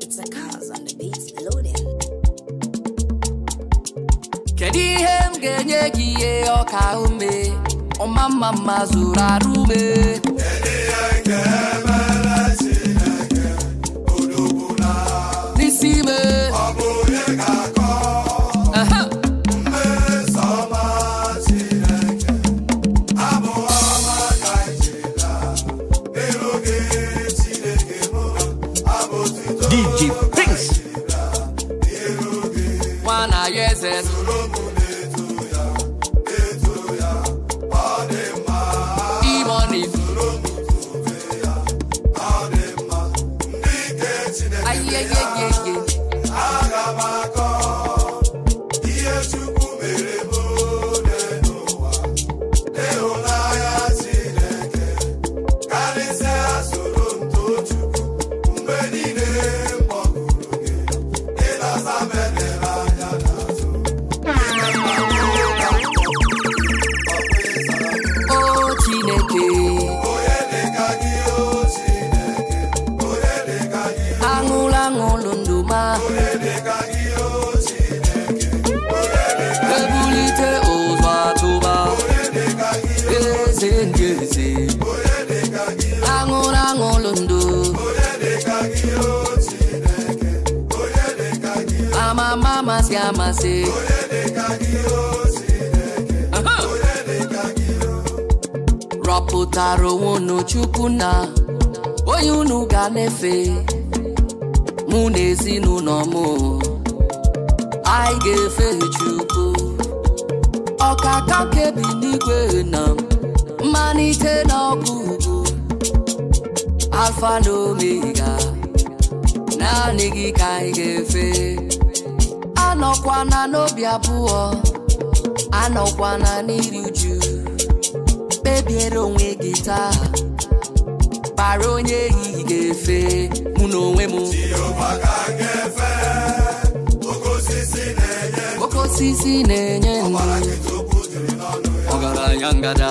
It's the cars on the beats loading. Kedu ihe m ga-enye gị ihe ume ọma mma mma zuru asị rọpụtara onwe unu chukwu na onye unu ga-efe mụ na ezinụlọ m anyị ga-efe chukwu ọkaka kebi n'igwe na mmalite na ugwu, alfa na omega naanị gị ka anyị ga-efe anọkwana n'obi abụọ anọkwana n'iri uju kpebiere onwe gị taa kpara onye ehihie ga-efe mụ na onwe m oke osisi na-enye ọgaranya ngada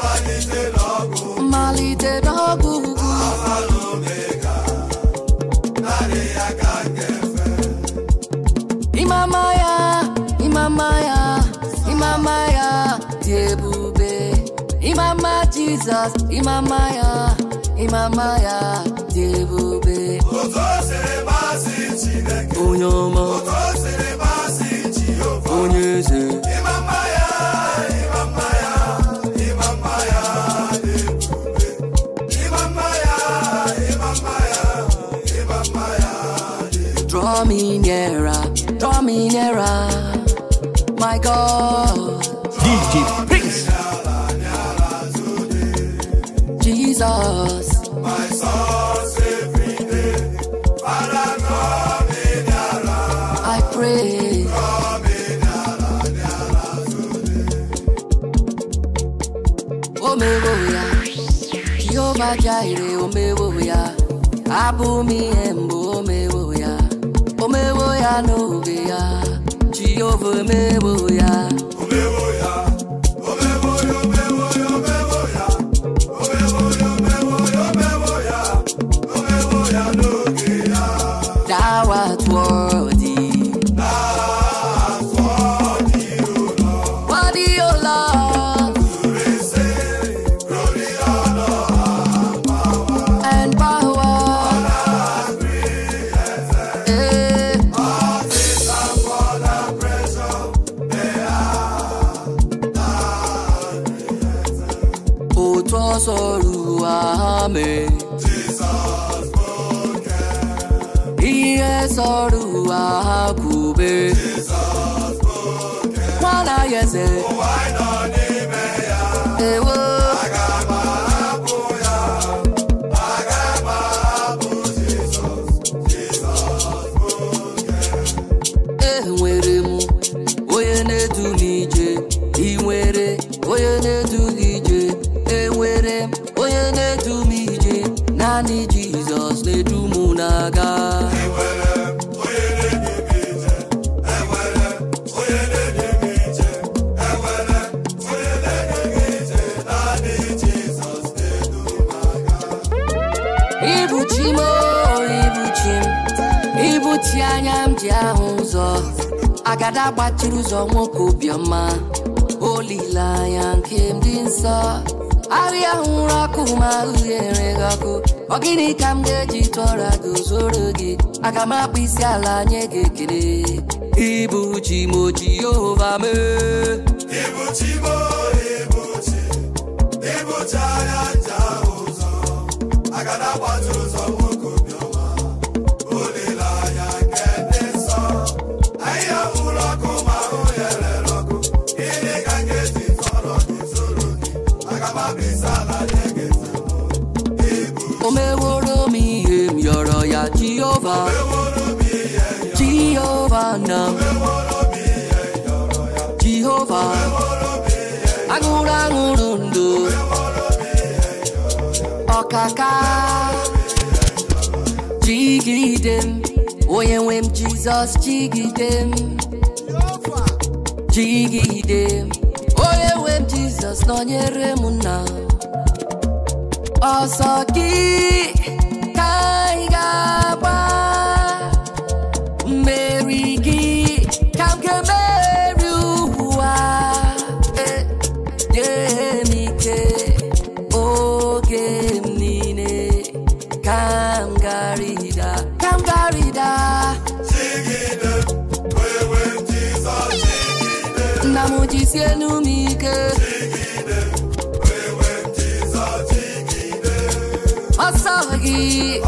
my Jesus, Imamaya, Imamaya, Debube. Onyoma, Onyeze. Imamaya, Imamaya, Imamaya, Imamaya, Imamaya, Imamaya, Draw me nearer, draw me nearer, my God. kwajaire omewo ya abụmi embo omewo ya omewo ya n'oge ya Jehova omewo ya Akube. While I agada gbachiri ụzọ nwoke obiọma olileanya nke ndị nsọ ahịa nwụrụ ọkụ ma wakini gị ọkụ ọ gịnị ka m ga-eji tụọra gị zoro gị aga m akpụ isi ala nye gị ekele ịbụ yehova mee ịbụ ịbụ chi ịbụ Jehovah Jehovah now Jehovah Agụrụ aṅụrụ ọkaka Jigidem, Oyewem Jesus, Jigidem, Jigidem, Oyewem Jesus, m jigide nọnyere Beat.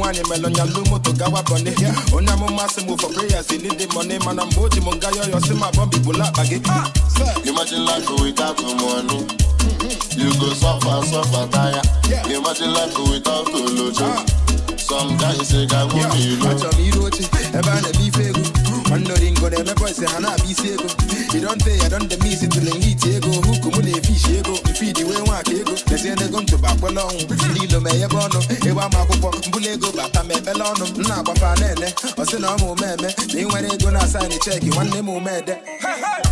one melụ nya lụ moto gawa bọni onye amụma sị for prayers in the money bụla ah, Imagine life without money mm-hmm. You go suffer, suffer, tire Imagine life without Olojo ah. Some guys say God won't be low Achọ m iru oche ebe a na-eme ife ego Nwanne ori ngo na na-abịa isi you don't say I don't miss it till elite ego. Who come with a fish ego? Feed the way one ego. Let's end the gum to back along. Lilo me a bono. Ewa makupo. Bulego bata me belono. Na kwa fanene. Osino mu meme. Ni wene go na sign the check. You want the mu mede.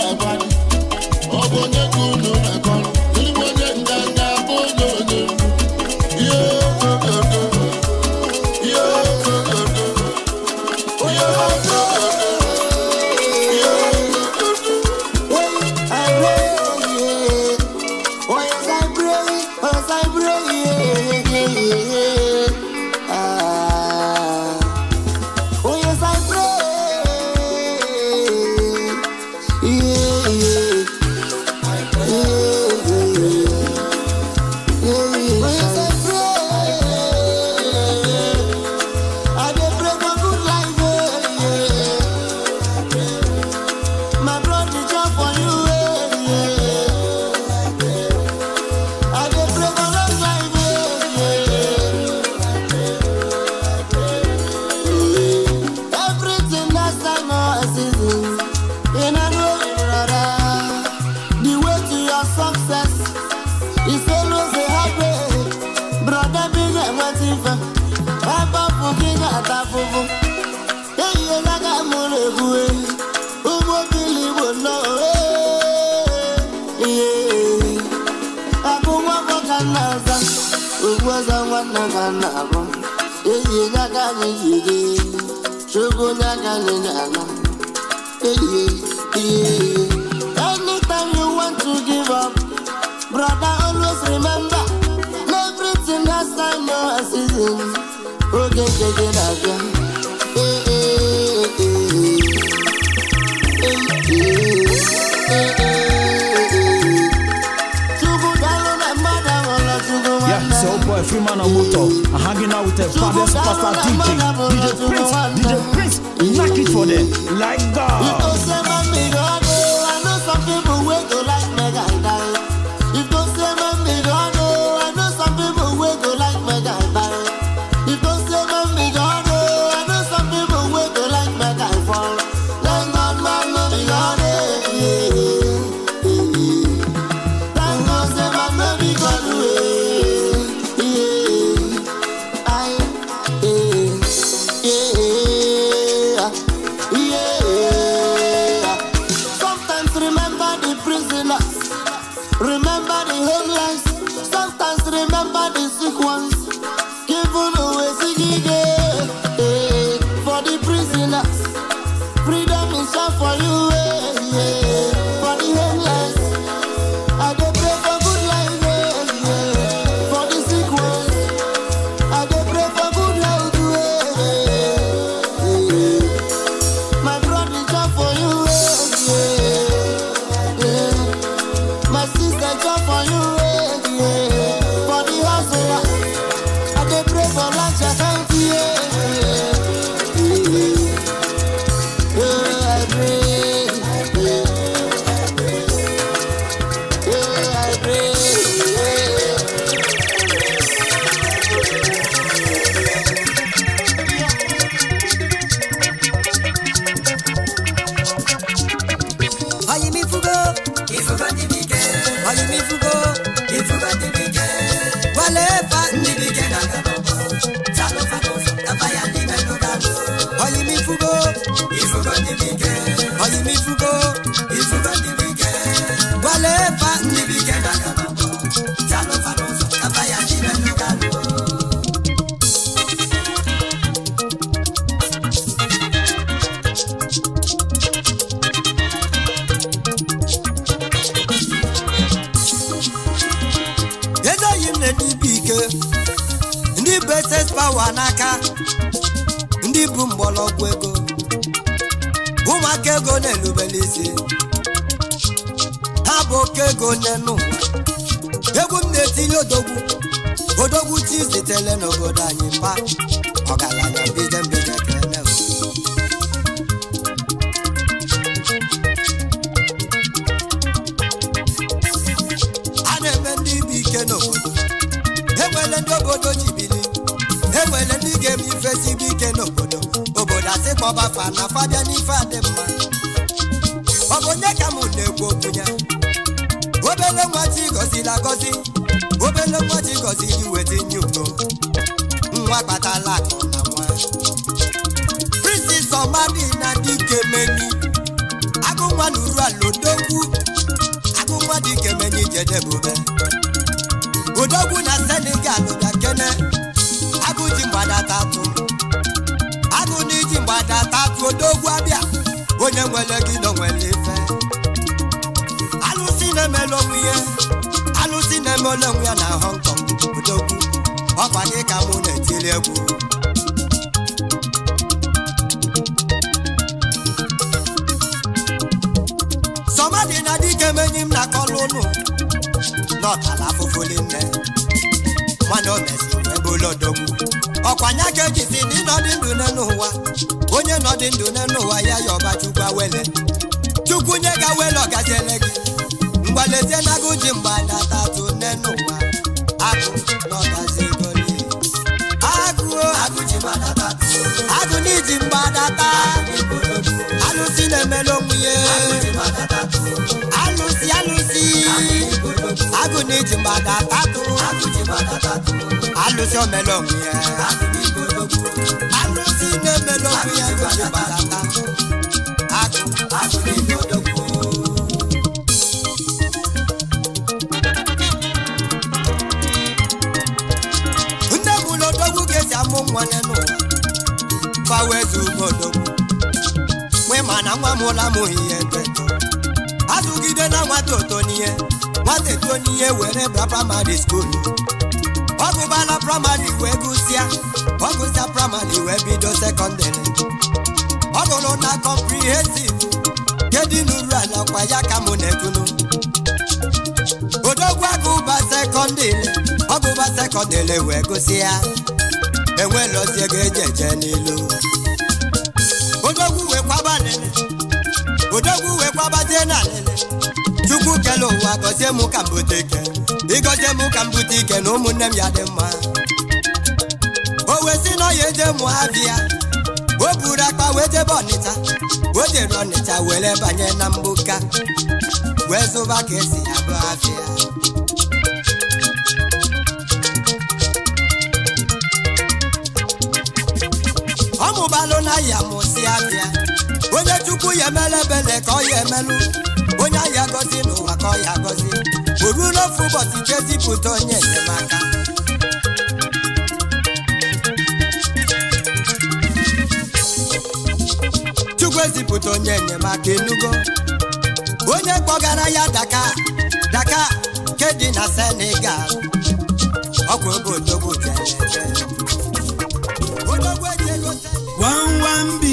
I buy. free man on motor. I'm hanging out with a fabulous pastor DJ. DJ Prince, DJ Prince, knock it for them. Like God. obodo anyị mba olodogwu ọkwa nya ka ejizi ndị nọdị ndụ n'ụwa onye nọdị ndụ n'ụwa ya ya ọba chukwa wele chukwu nye ga wele ọgaziele gị mgbalezie agụ ji mgbe ada tatụ nne n'ụwa agụ n'ọgazi goli agụ agụ n'iji mgbe adata alụsị na-emela onwe ya alụsị alụsị agụ n'iji mgbe adata lụsi omelọgwụ ya alụsi na-emelọgwụ ya gojibalata nne m na odogwu ga-esi amụ nwa n'elu fawezi ugodogwu nwe mana nwa m ụla m ihe teto azụgide na nwata oto n'ihe nwata eto n'ihe were brapa madi skolu ọ gụbala praịmarị wee gụsịa ọgụsịa gụsịa praịmarị wee bido sekọndịrị ọ gụrụ na kọmprihensiv kedụ n'uru ala kwa ya ka mụ na-ekunu odogwu agụba sekọndịrị ọ sekọndịrị wee gụsịa enwere ozi ego eje eje n'ilu odogwu wee kwaba wee kwabazie na alele chukwu kele ụwa gọzie m ka bute ike ịgọzie m ka m bute na ụmụnne m ya dị mma o wee si na ọya eje mụ abịa o buru akpa wee jebe ọnịcha o jere ọnịcha were banye na mgbuka wee zụba ka esi ya bụ ọ mụbalụ na ya mụsi abịa. onye chukwu ya emela ebele ka ọ ya emelụ onye ahịa agọzi n'ụwa ka ọ ya agọzi o ruola ofu ụbọchị jezipụta onye enyemaka chukwu ezipụta onye enyemaka enugo onye kpọgara ya daka daka nke dị na senegal ọkwa ebe odogwu bịara ebe odogwu eji ego senegal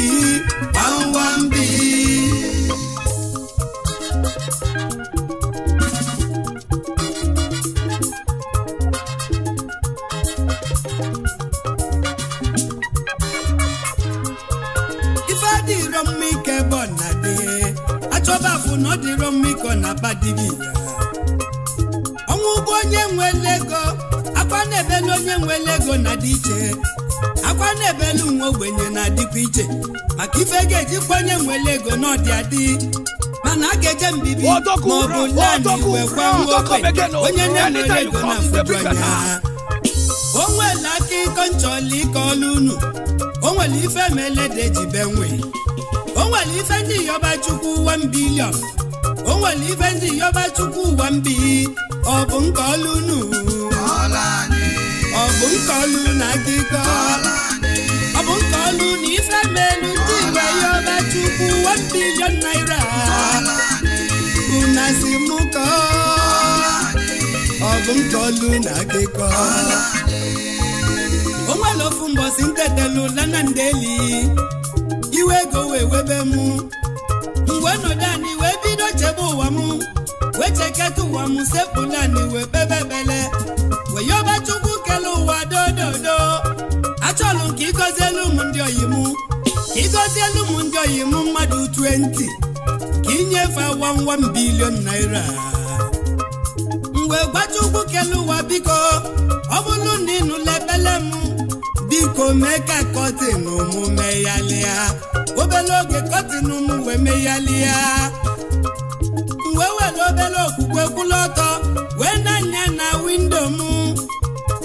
ọ dịrọ mma ịkọ na badibia ọnwụ bụ onye nwere ego akwa na-ebelu onye nwere ego na dị iche akwa na-ebelu nwa ogbenye na-adịkwa iche maka ife ga eji onye nwere ego na ọdị adị mana a ga-eje mbibi ma ọ bụ naanị kwa nwa ogbenye onye na-enwere ego na-afụju anya o nwere aka ịkọ nchọla ịkọ ọlụ unu o nwere ife mele da ejibe nwe o nwere ife ndị yọba chukwu 1 nwere ibe ndị yọba chukwu ụwa mbi ọ bụ nke ọlụnu ọ bụ nke ọlụ na akịkọ ọ bụ nke ọlụ na ife melu ndị igwe yọba chukwu ụwa mbilion naira una si mụ kọ ọ bụ nke ọlụ na akịkọ o nwere ofu mbọsi ntetelụ lanandeli iwe ego wee webe mụ mgbe nọdụ anị wee bido chebe ụwa m wee cheketa ụwa m sepụla anị wee bebebele wee yọba chukwu kele ụwa dododo achọlụ ka ịgọzielu m ndị oyi m ka ịgọzielu m ndị oyi m mmadụ 20 ka inyefe 11 bilion naira mgbe gbacha ugwu kele ụwa biko ọ bụrụ na ịnụla ebele m biko mee ka kọtin omume ya lịa obele oge kọtịnụ m wee ya. wee were obere okwukwe kwụlụ ọtọ wee nanya na windo m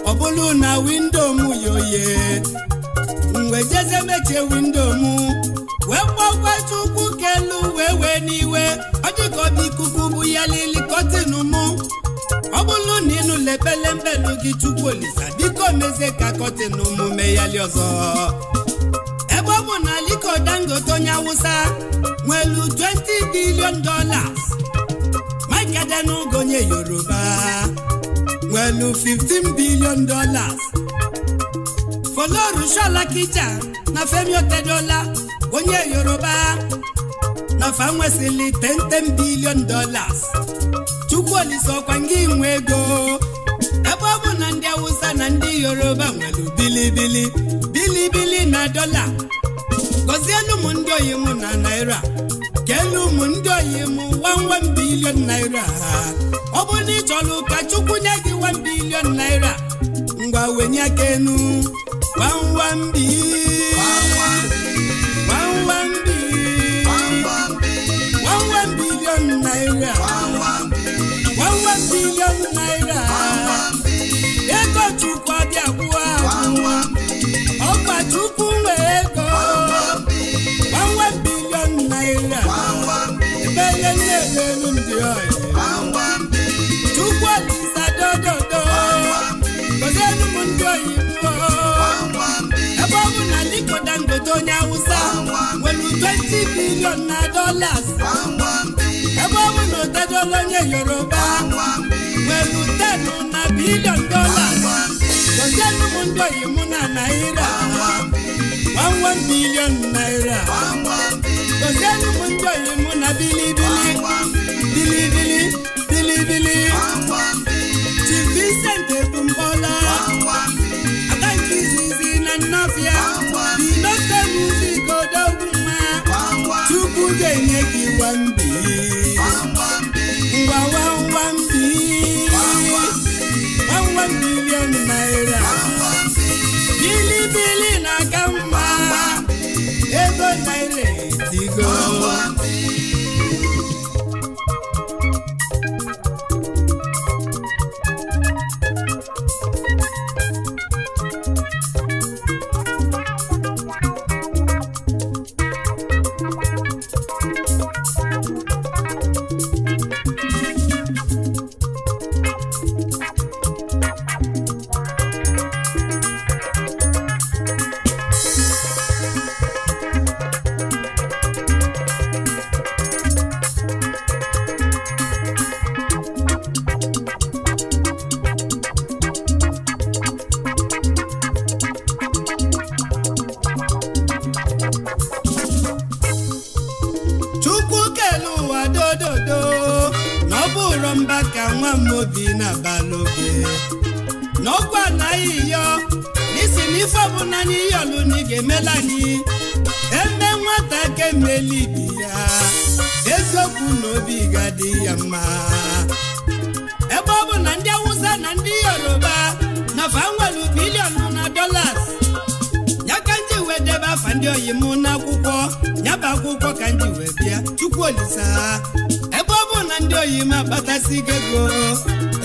ọ bụrụ na windo m yoye mgbe jeze mechie windo m wee kpọkwa chukwu kelu wee wee n'iwe ọ dịka ikuku bụ ya lili kọtịnụ m ọ bụrụ na ịnụla mbelu gị chukwu olisa biko mezie ka kọtịnụ m meghali ọzọ ebe na Aliko Dangote onye awusa nwelu 20 billion dollars Mike Adenuga onye Yoruba nwelu 15 billion dollars Folorunsho Lakija na Femi Otedola onye Yoruba na fa 10 billion dollars oliso ọkwa nga inwe ego ebe ọ bụ na ndị Awụsa na ndị Yoruba nwere bilibili bilibili na dọla gọzielu m ndị oyi m na naira keelu ụmụ ndị oyi m 1 bilion naira ọ bụ na ị chọrọ ụka Chukwu nye gị 1 bilion naira ngwa wenye aka enu 1 bilion naira 1 bilion naira Chukwu ọbịa agwụwa agwụwa ọgba tupu nwere ego gbanwe bilion naira ebenye nne n'elu ndị ọyị Chukwu ndị oyibo ebe ọ bụ na Aliko Dangote onye Awụsa nwere 20 bilion na dolas ebe ọ bụ na onye Yoruba pẹ̀lú tẹ̀nu na bílíọ̀n dọ́là lọ́jọ́ ní jọ yìí mú na náírà one one billion naira lọ́jọ́ ní jọ yìí mú na bílíbílí bílíbílí bílíbílí ti Vincent ga-emeli ibi ya eziokwu na obi ga-adị ya mma ebe ọ na ndị awụsa na ndị yoruba na fa nwere biliọnụ na dolas ya ka njiwe wee debe afa ndị oyi m n'akwụkwọ nyaba akwụkwọ ka njiwe wee bịa chukwu olisa ebe ọ na ndị oyi m akpatasigo ego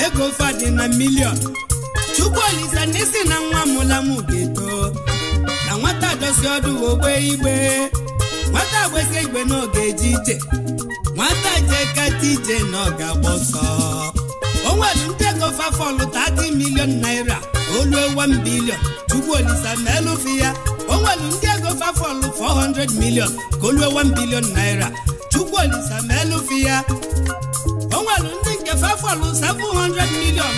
ego fadị na miliọn chukwu olisa n'isi na nwa mụla m ga-eto na nwata dosi ọdụ ogbe igbe nwata gbesi igwe na eji ga ije nwata jee kata ije na ọ ga onwere ọsọ o nwere ndị ego fafọlụ 30 milion naira olu 1 bilion tupu olisa na elụfi ya onwere nwere ndị ego fafọlụ 400 milion ka olu 1 bilion naira tupu olisa ma elụfi ya onwere nwere ndị nke fafọlụ 700 milion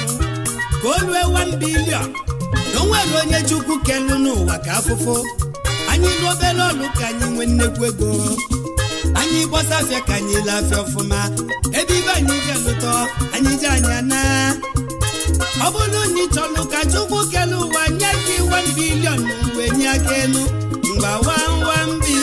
ka olu 1 bilion na onye chukwu kelu n'ụwa ka afụfụ anyị lụ obere ọlụ ka anyị nwee nnekwu ego anyị gbọsafịa ka anyị lafịa ọfụma ebe ibe anyị ga-elụtọ anyị ji anya na ọ bụrụ na ị chọlụ ka chukwu kele ụwa nye gị 1 bilion wee nye aka elu mgba 1 1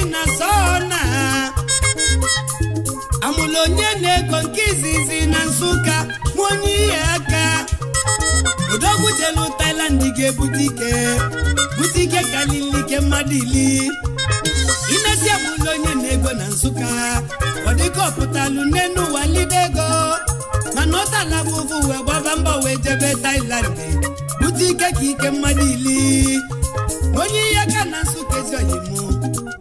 ọbụla onye na-ego nke izizi na Nsụka nwa onye ihe aka odogwu jelu ga-ebute ike bute ike karịrị ike mmadụ ili imezi ọbụla onye na-ego na Nsụka ọ dịka ọpụtalụ n'enu ụwa lide mana ọ tala bụ ụvụ wee gbaba mbọ wee jebe Thailand bute ike ka ike mmadụ ili onye ihe aka na Nsụka ezi oyimụ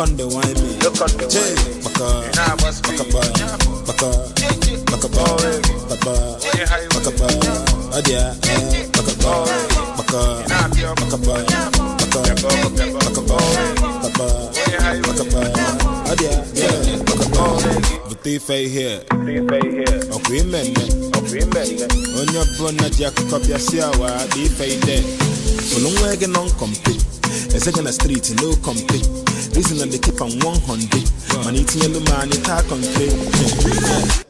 one. water contained.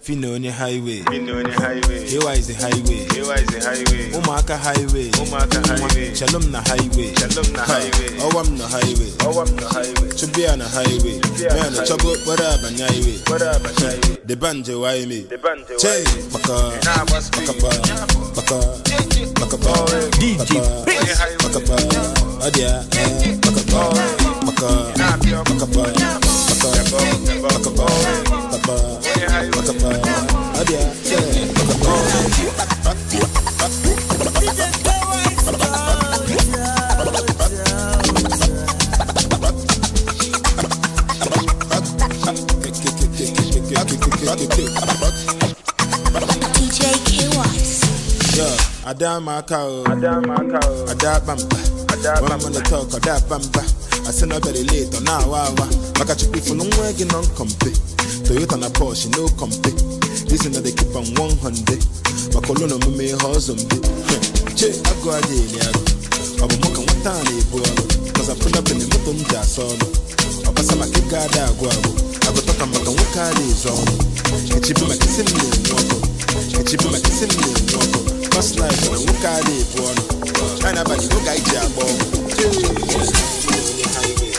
Finoni Highway. Finoni Highway. Ewa the highway. Here is the highway. Umaka Highway. Umaka Highway. Shalom na Highway. Shalom na Highway. Owam na Highway. Owam na Highway. Chubia na Highway. Man, the trouble. What up on Highway? What up on Highway? The banjo why me? The banjo. Chay. Baka. Baka. Baka. Baka. Baka. DJ. Baka. Adia. Baka. Baka. Baka. Baka. Adama cow, Adama cow, Adabamba, Adabamba, Adabamba, Adabamba, Adabamba, Adabamba, Adabamba, Adabamba, Adabamba, Adabamba, Adabamba, I send no very late on now hour. Maka chipi for no work in compete. Toyota na Porsche no compete. This is not they keep on 100. my mume husband. Che ago adele ago. what time they ibualo. Cause I put up in the moto mja solo. Abasa makika da ago ago. Ago toka maka wukari zono. Echibi makisimu mwako. Echibi makisimu mwako. Cause life na wukari ibualo. China bani wuka iji abo. Yeah.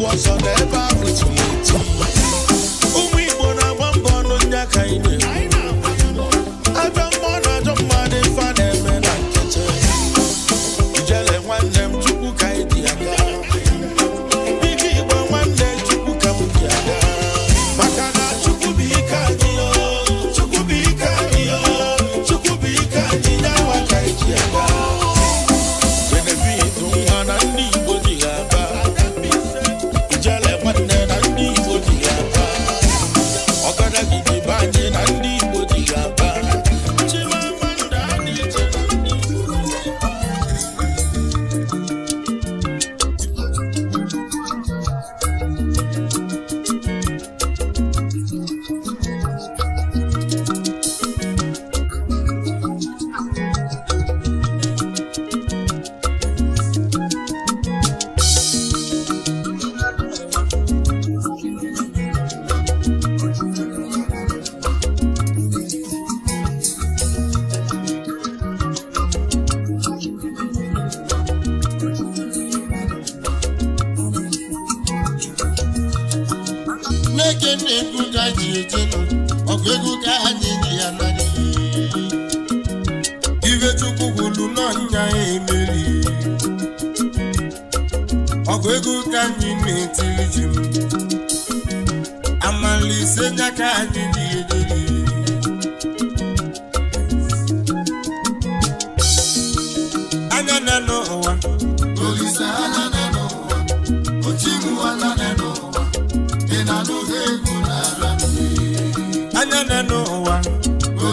was on every tweet.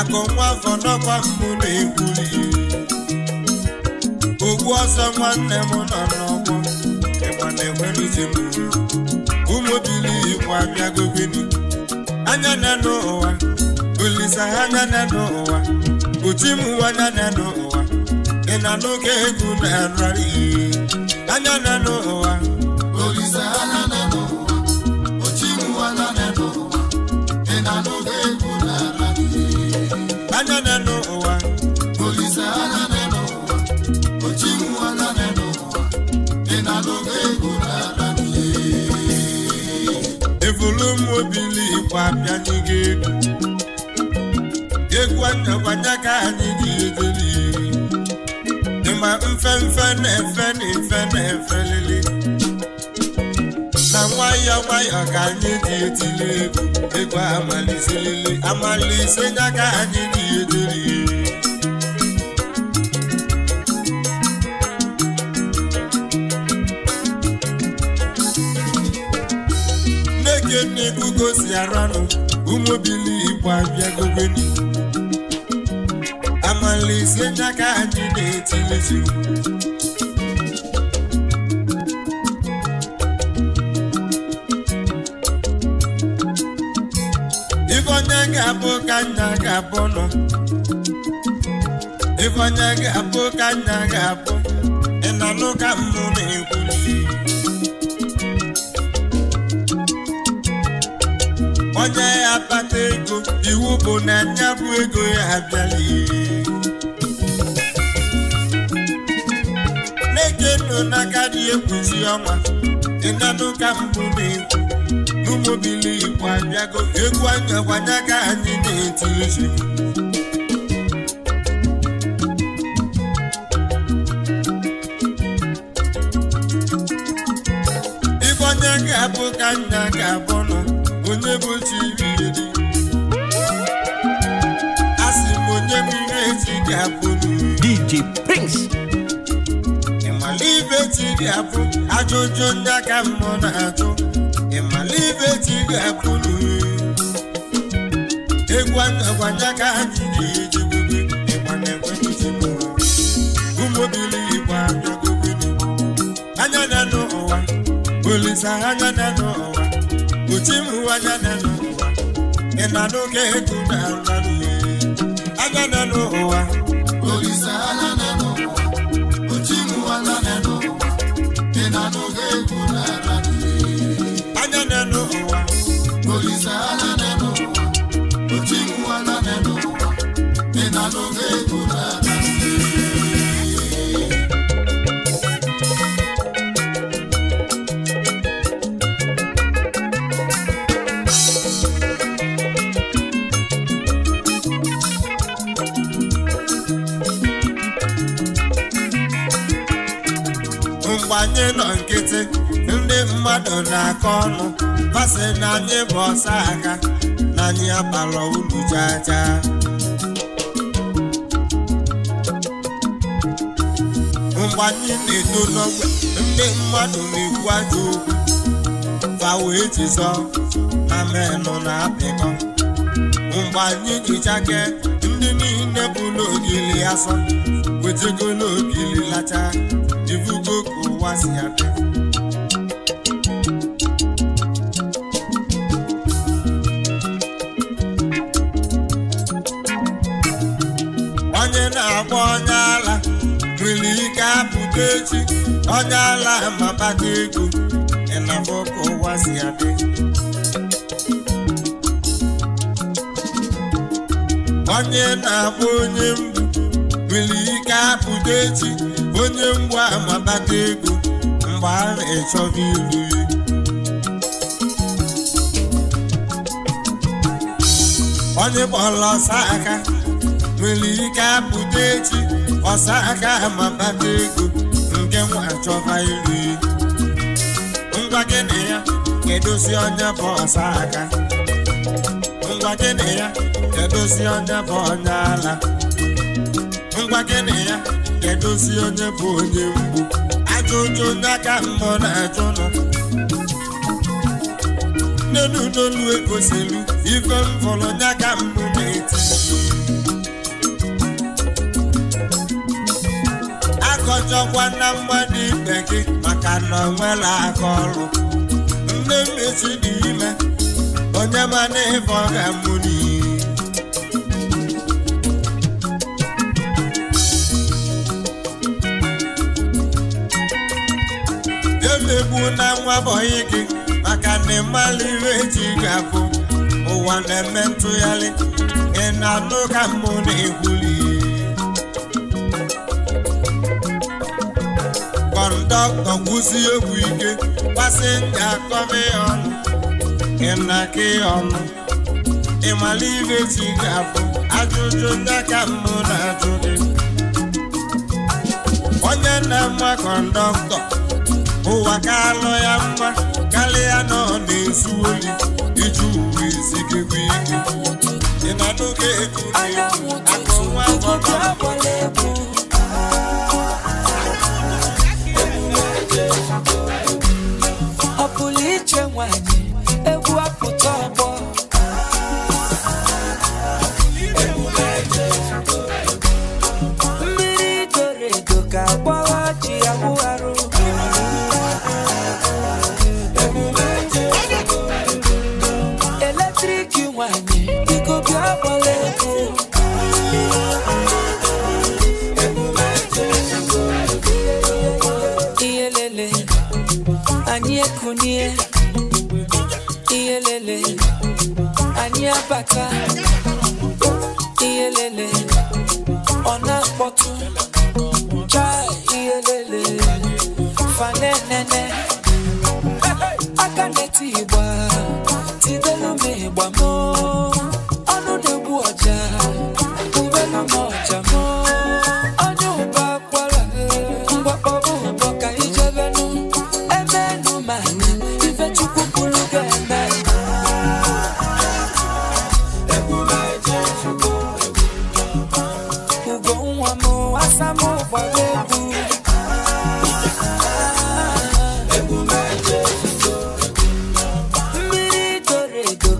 akọnkwa afọ n'ọkwa mbụ na-ekwuli ogbu ọsọ nwanne m nọ n'ọgbọ ịgba na-enwere uche m ụmụ bili igbo abịagobeni anya na n'ụwa olisa ha anya na n'ụwa uchi m anya na n'ụwa ị na n'oge egwu na nrari anya na n'ụwa ụwa bịanye gị egwu egwu atakwana ka anyị ga iri dịma mfemfe na-efe na efe na-efe lili na nwayọọ nwayọọ ka anyị dị etili egwu egwu amaliselili amalise nya ka anyị ga-edeliri ka o si aranụ ụmụbili igbo abịagogoni amalise n'aka anyị na-etilizi ife onye ga-abụ ka nna ga-abụ nọ ife onye ga-abụ ka nna ga-abụ ị na-anụ na-ekwu onye ya kpata ego iwu bụ na ya bụ ego ya abịaghị na-eke nọ n'aka dị ekwuzi ọnwa ịnanụ ka mbụ na-ekwu n'ụmụbili igbo abịago egwu anya gwanya ka anyị na-eti izu ife onye bụ chi iriri a sị m onye m ihe ji ga-abụ DJ Prince ịmala ibe ji ga-abụ ajụjụ ndị aka mmụọ na-ajụ ịmala ibe ji ga-abụ egwu agwanye aka anyị na-eji ụmụbilirikwa anya na n'ụwa olisa anya na n'ụwa uchi m hụ e anya n'elu ụwa ị na n'oge etu na anya n'elu ụwa asị ndị mmadụ na-akọ ọnụ masị na anyị bụ ọsa aka na anyị abalọ ulu jaja mgbe anyị na-eto n'ogbe ndị mmadụ na-ekwu ajọ okwu fa wee jizọ na menụ na-apịkọ mgbe anyị jichake ndị niile bụ n'ogili asọ wetagolo ogili lacha ivugo ka ụwa si adị Ogechi onye ala mabata ego ịnafọ ka ụwa si adị onye na agba onye mbụ nwere ike apụta echi onye mgbu amabata ego mgbe a na-echọba iru ya onye kpọrọ ọsọ aka nwere ike apụta echi ọsọ aka amabata ego nwa achọba iri ngwa gị na ya kedozi onye bụ ọsa aka ngwa gị na ya kedozi onye bụ onye ala ngwa gị na ya kedozi onye bụ onye mgbu ajọ ụjọ onye aka mmụọ na achụ nọ nne n'olu egoselu ife mvọrọ onye aka mbụ na-eti achọkwa na mgbada ikpe gị maka na onwela aka ọrụ nne mmesi dị ime onye mana ịfọ ga-amụ n'iyi emegbu na nwa bọyị gị maka na ịmala iwe eji ga ụwa na-eme ntụgharị ị na-anụ ka mmụ na-egwuli doctor kwụsị egwu ike pasenja kọmi ọnụ ịnaki ọnụ ịmala ibe ji ga-abụ ajụjụ ndị ka na-ajụ gị onye nna mma kọndọktọ ụwa ka alụ ya mma karịa nọ ọ na-ezu oyi iji uwe bụ ike ịnọnụ ga-ekuru akụ nwa 千万里。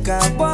one.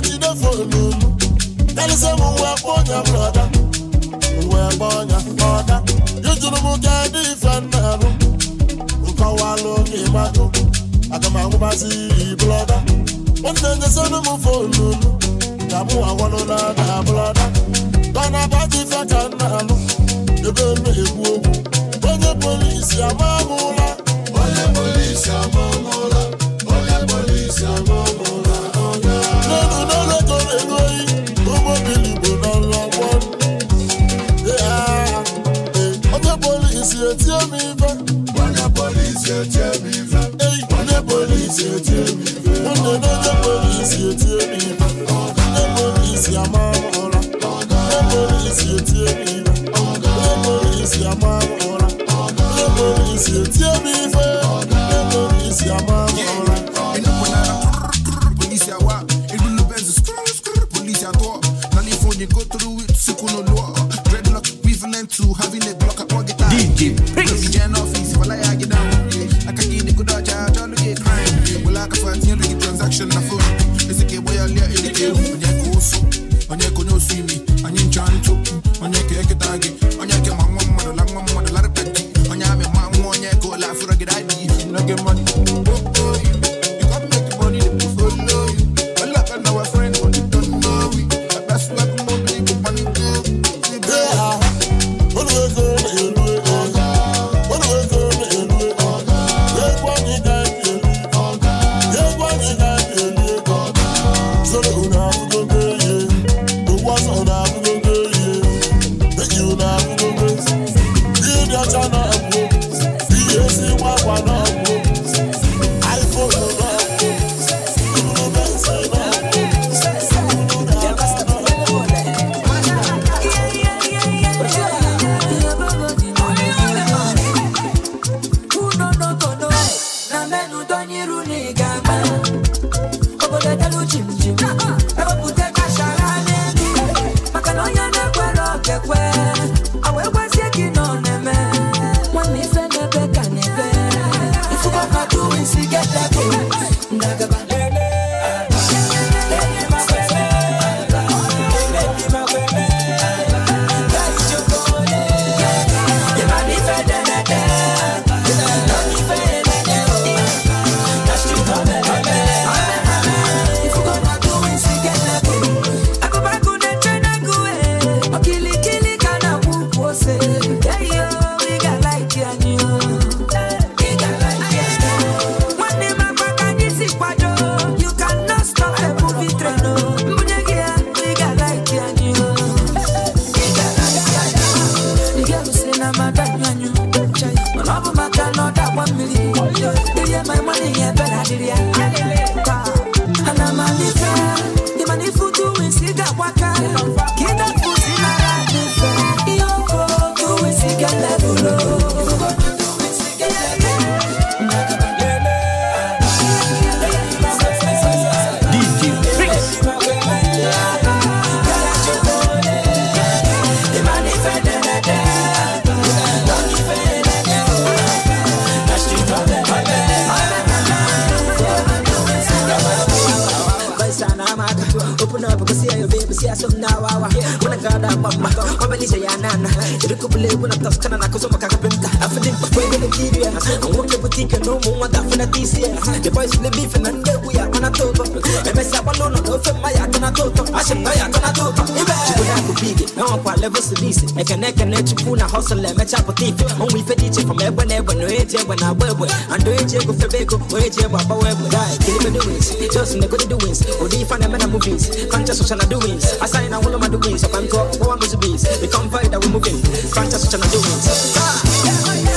body dey follow me. Tell say mo wẹ kponya broda, mo wẹ kponya ọda. Yójúlu mu kẹ́ di ìfẹ́ mẹ́rù, nǹkan wà lókè májú. Àtàmà ń bá sí ìbúlọ́dá. Ó ní ẹ̀jẹ̀ sẹ́nu mu fòlù mi. Ìdààmú àwọn lọ́dà dà búlọ́dá. Tọ́nà bá ti fẹ́ kẹ́ mẹ́rù, ebe mi ègbú ogun. Onye polisi àmọ́ mú la. Onye polisi àmọ́ mú la. Onye polisi àmọ́ mú la see you tear me for na mama kwa beni jayana na irikubule wuna taskana na kusoma kakapimba Cause we're gonna keep ya. And walk your boutique and no more, that for that this year. The boys in the beef and then we are on a total. And I said, I don't know if my yak on a total. I should buy yak on a total. Now I'm quite level police. I can neck and let you pull a hustle and match up a thief. Only for teaching from ever, never, no age, when I wear. And do it, go for Beko, wage, Baba, web, die, kill me doings. Just in the good doings. Or the fan and movies. Conscious of doings. I sign all of my doings. If I'm caught, what I'm busy bees. We come fight that we're moving. Conscious of doings. Ah, yeah, yeah.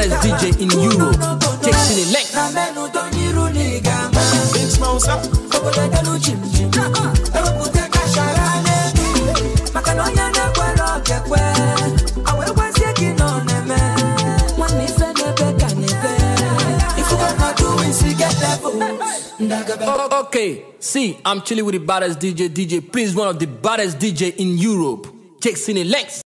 baddest DJ in Europe. Check Chile Link. Big Okay, see, I'm chilling with the baddest DJ, DJ, please, one of the baddest DJ in Europe. Check Cine Lex.